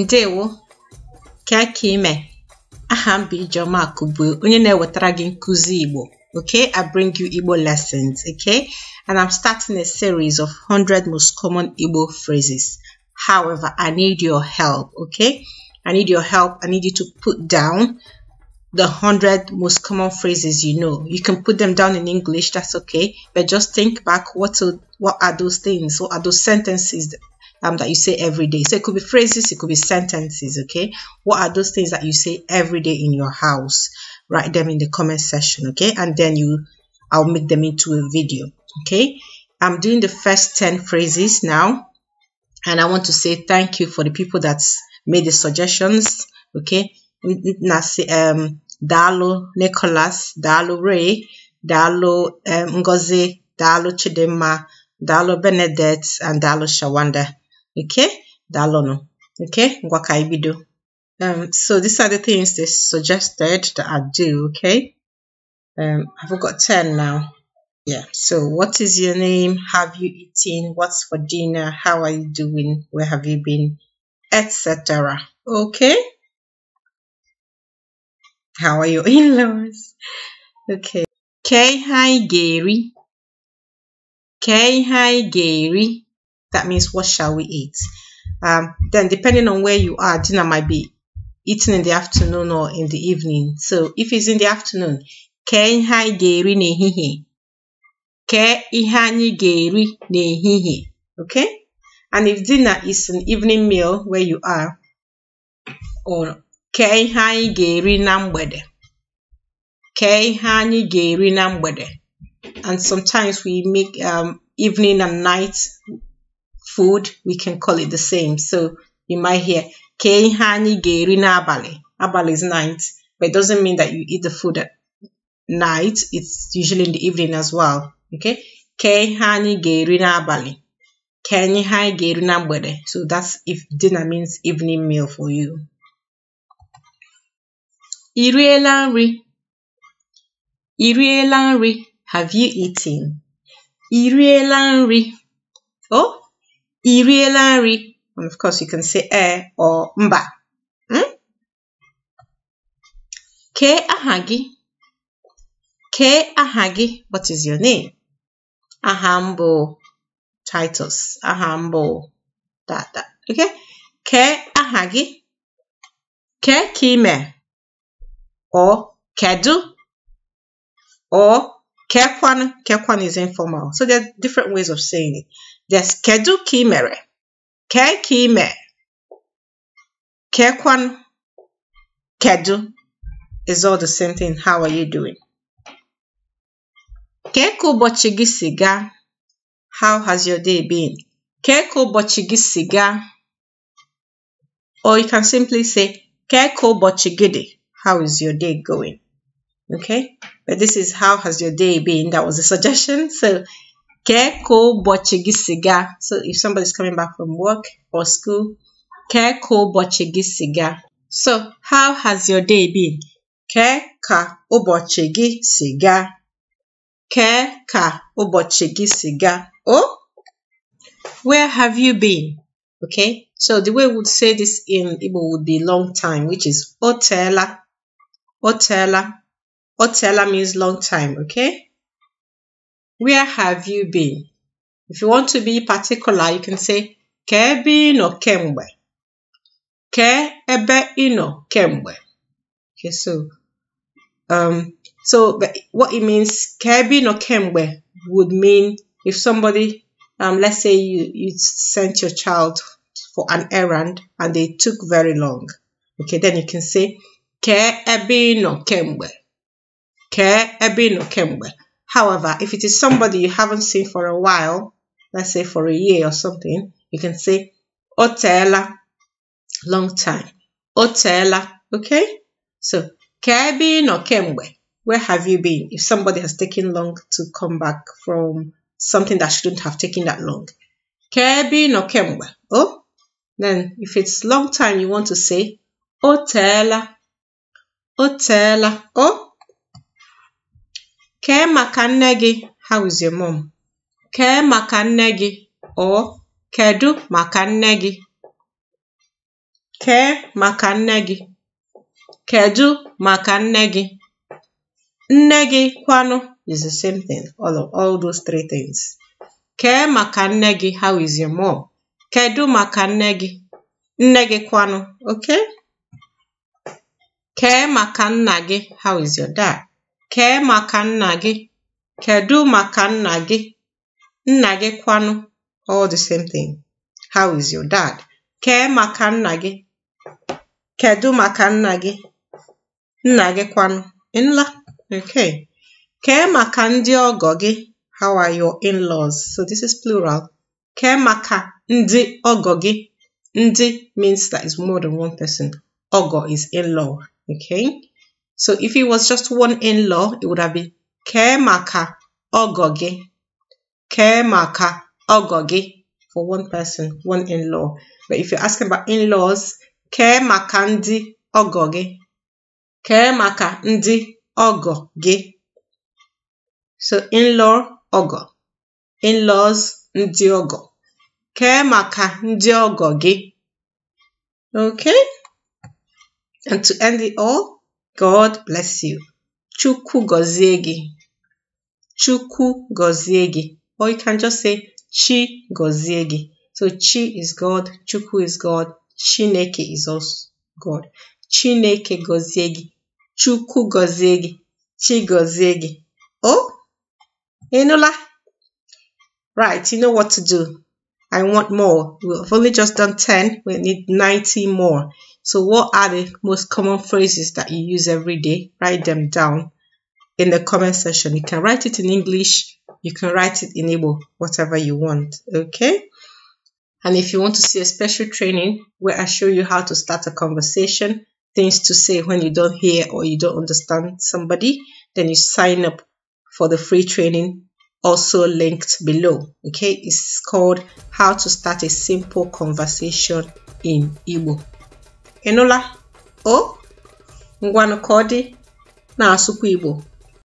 ǹdewo kà aka ime aha m Ijeọma Akụbue onye na-ewetara gị nkụzi Igbo okay I bring you Igbo lessons okay and I'm starting a series of 100 most common Igbo phrases however I need your help okay I need your help I need you to put down the 100 most common phrases you know you can put them down in English that's okay but just think back what to, what are those things what are those sentences um, that you say every day. So it could be phrases, it could be sentences, okay? What are those things that you say every day in your house? Write them in the comment section, okay? And then you, I'll make them into a video, okay? I'm doing the first 10 phrases now. And I want to say thank you for the people that made the suggestions, okay? Nasi, um, Dalo Nicholas, Dalo Ray, Dalo um, Ngozi, Dalo Chidema, Dalo Benedict, and Dalo Shawanda. Okay, no Okay, ngwa ka Um, so these are the things they suggested that I do. Okay, um, I've got 10 now. Yeah, so what is your name? Have you eaten? What's for dinner? How are you doing? Where have you been? Etc. Okay. How are your in-laws? Okay. K hi Gary. K hi Gary. That means what shall we eat? Um, then depending on where you are, dinner might be eaten in the afternoon or in the evening. So if it's in the afternoon, kee ihe anyị ga-eri n'ehihie. Kee ihe anyị Okay? And if dinner is an evening meal where you are, or kee ihe anyị ga-eri na mgbede. Kee ihe And sometimes we make um, evening and night food, we can call it the same. So you might hear kei hani anyi na abale. Abale is night, but it doesn't mean that you eat the food at night. It's usually in the evening as well. Okay? kei hani anyi na abale. Kei hani ihe na bude. So that's if dinner means evening meal for you. Iriela riela nri? I nri? Have you eaten? Iriela nri? Oh, I nri? And of course, you can say e or mba. Hmm? Kee aha gị? Kee aha gị? What is your name? Aha m Titus. Aha m bụ Okay? Kee aha gị? Kee ka ị mee? Or kedu? Or kekwanụ? Kekwanụ is informal. So there are different ways of saying it. Yes, kedu ka ị mere? ke ka ị mee? Kedu is all the same thing. How are you doing? ke ka ụbọchị gị si gaa? How has your day been? ke ka ụbọchị gị si gaa? Or you can simply say, ke ka ụbọchị gị dị? How is your day going? Okay, but this is how has your day been? That was a suggestion. So Keko bochigi siga. So if somebody's coming back from work or school, keko bochigi siga. So how has your day been? Keka ubochigi siga. Keka ubochigi siga. Oh, where have you been? Okay, so the way we would say this in Igbo would be long time, which is otela. Otela. Otela means long time, okay? Where have you been? If you want to be particular, you can say ka ebe ị nọ kemgbe. ebe kemgbe. Okay, so um, so what it means ka ebe nọ kemgbe would mean if somebody um, let's say you, you sent your child for an errand and they took very long. Okay, then you can say ka ebe nọ kemgbe. Ka ebe nọ kemgbe. However, if it is somebody you haven't seen for a while, let's say for a year or something, you can say otela, long time. Otela, okay? So, kebin or kemwe, where have you been? If somebody has taken long to come back from something that shouldn't have taken that long. Kebin or kemwe, oh? Then, if it's long time, you want to say otela, otela, oh? kee maka nne gị hauze mom kee maka nne gị ọ kedu maka nne gị kee maka nne gị kedu maka nne gị nne gị kwanụ is the same thing all of all those three things kee maka nne gị how is your mom kedu maka nne gị nne gị kwanụ okay kee maka nna gị how is your dad Kee maka nna gị, kedụ maka nna gị, nna gị kwanụ all the same thing. How is your dad? Kee maka nna gị, kedụ maka nna gị, nna gị kwanụ nla okay. Kee maka ndị ọgọ gị, how are your in-laws? So this is plural. Kee maka ndị ọgọ gị, ndị means that is more than one person. Ọgọ is in-law okay. So if it was just one in-law, it would have been Kemaka Ogogi. Kemaka Ogogi for one person, one in-law. But if you're asking about in-laws, Kemaka Ndi Ogogi. Kemaka Ndi Ogogi. So in-law Ogo. In-laws Ndi Ogo. Kemaka Ndi Ogogi. Okay? And to end it all, God bless you. Chuku gozie chuku Chukwu Or you can just say Chi gozie So Chi is God, Chuku is God, Chineke is also God. Chineke gozie Chuku Chukwu Chi gozie Oh, Enola. Right, you know what to do. I want more. We've only just done 10. We need 90 more. So what are the most common phrases that you use every day? Write them down in the comment section. You can write it in English, you can write it in Igbo, whatever you want, okay? And if you want to see a special training where I show you how to start a conversation, things to say when you don't hear or you don't understand somebody, then you sign up for the free training also linked below. Okay, it's called How to Start a Simple Conversation in Igbo. ịnụla o ngwanụ ka ọ dị na-asụkwa Igbo